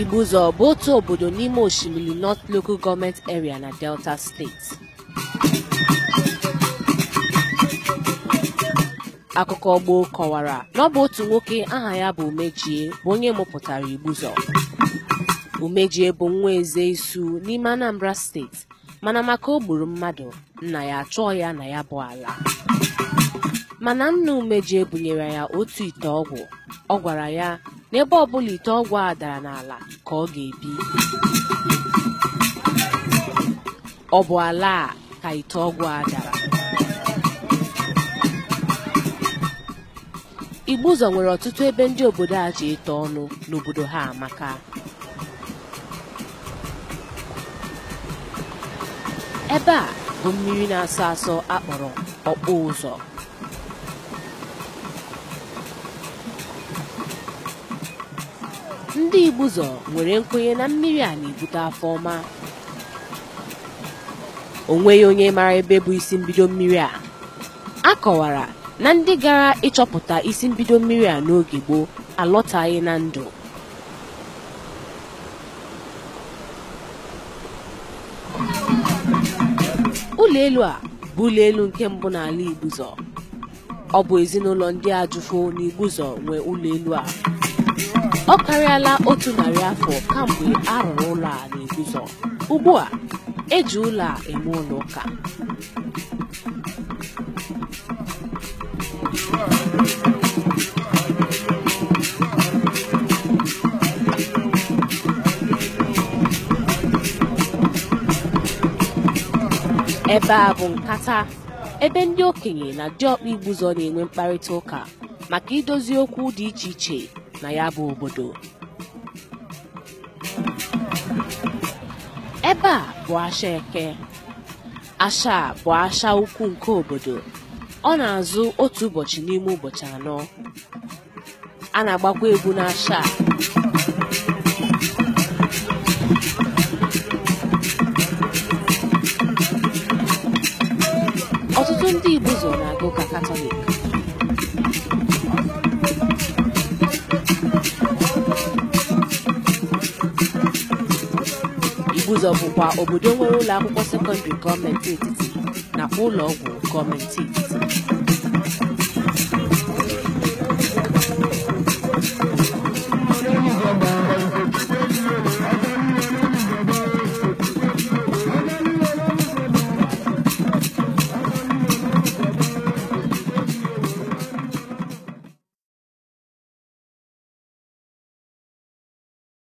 Igbuzo bụ otu obodo n'ime osimiri North Local Government Area na Delta Steeti. Akụkọ gboo kọwara na ọ bụ otu nwoke aha ya bụ Umejie bụ onye mụpụtara Igbuzo. Umejie bụ nwa eze isu n'ime Anambra Steeti mana maka o gburu mmadụ nna ya achọọ ya na ya bụ ala. Mana nna Umejie bunyere ya otu ite ọgwụ ọ gwara ya n'ebe ọbụla ite ọgwụ a dara n'ala ka ọ ga-ebi ọ bụ ala a ka ite ọgwụ a dara igbu ụzọ nwere ọtụtụ ebe ndị obodo a ji ete ọnụ n'obodo ha amaka ebe a bụ mmiri na-asọ asọ akpọrọ ọkpụ ụzọ ndị igbuzọ nwere nkwenye na mmiri a na-ebute afọ ọma onweghị onye mara ebe bụ isi mbido mmiri a a kọwara na ndị gara ịchọpụta isi mbido mmiri a n'oge gboo alọtaghị na ndụ Ụlọelu a bụ ụlọ elu nke mbụ n'ala Igbuzor ọ bụ ezinụlọ ndị Ajụfo na nwe ụlọ a ọ karịala otu narị afọ kamgbe a rụrụ ụlọ a na-eguzo ugbu a eji ụlọ a eme ụlọ ụka ebe a bụ nkata ebe ndị okenye na diọkpa igbuzo na-enwe mkparịta ụka maka idozi okwu dị iche iche na ya bụ obodo ebe a bụ asha eke asha bụ asha ukwu nke obodo ọ na-azụ otu ụbọchị n'ime ụbọchị anọ a na-agbakwa egwu n'asha a ọtụtụ ndị Igbo zọ na-agụ ka katọlik Ibuzor bụkwa obodo nwere ụlọakwụkwọ sekọndịrị gọọmenti etiti nakwa ụlọọgwụ gọọmenti etiti